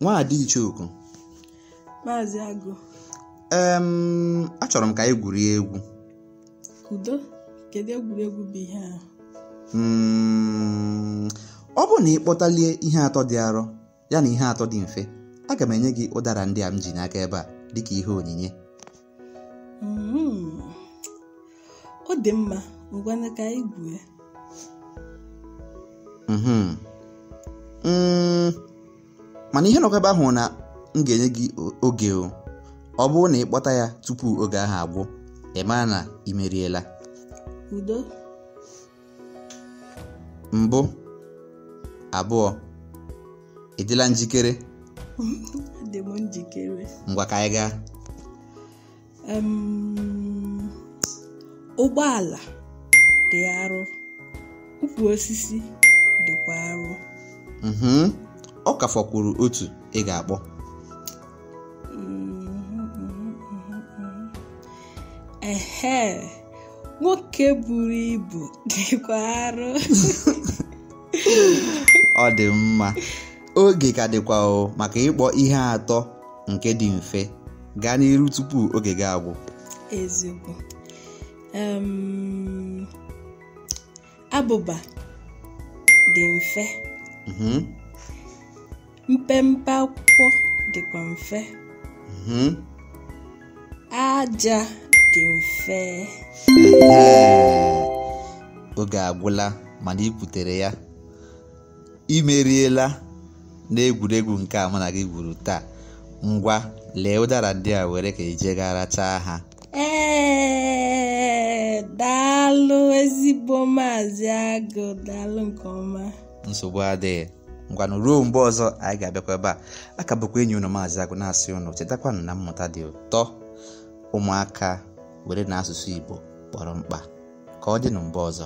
Nwadi Ichooku Maazị Agụ achọrọ m ka anyị gwurie egwu udo egwuregwu bụ ihe a hmm, ọ bụrụ na ị kpọtalie ihe atọ dị arọ ya na ihe atọ dị mfe aga m enye gị ụdara ndị a m ji n'aka ebe a dịka ihe onyinye Mm, ọ dị mma ka anyị mana ihe nọkwa ahụ na m ga-enye gị oge o ọ bụrụ na ị kpọta ya tupu oge ahụ agwụ ị na ị meriela mbụ abụọ ịdịla njikere dị m njikere ngwa ka anyị gaa ụgbọala dị arụ ukwu osisi dịkwa arụ mhm. ọ kafakwuru otu ị ga-akpọ ehe nwoke buru ibu dịkwa arụ ọ dị mma oge ka dịkwa o maka ịkpọ ihe atọ nke dị mfe gaa n'iru tupu oge gị agwụ ezigbo abụba dị mfe mhm. mpempe akwụkwọ dịkwa mfe mm-hmm. aja dị mfe oge agwụla mana i ya imeriela n'egwuregwu nke a mụ gị gwuru taa ngwa lee ụdara ndị a were ka ijegara taa ha daa daalụ ezigbo maazị agụ daalụ nke ọma nsogbu adịghị ngwanụ ruo mgbe ọzọ anyị ga-abịakwa ebe a akabụkwa enyi unu maazị agụ na-asị unu chetakwanụ na mmụta dị ụtọ ụmụaka were na asụsụ igbo kpọrọ mkpa ka ọ dị na mgbe ọzọ